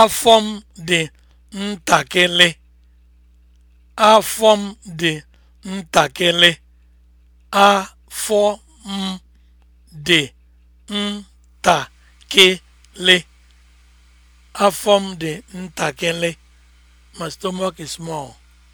Afọ m dị ntakịrị. Afọ dị dị ntakịrị. Afọ My stomach is small.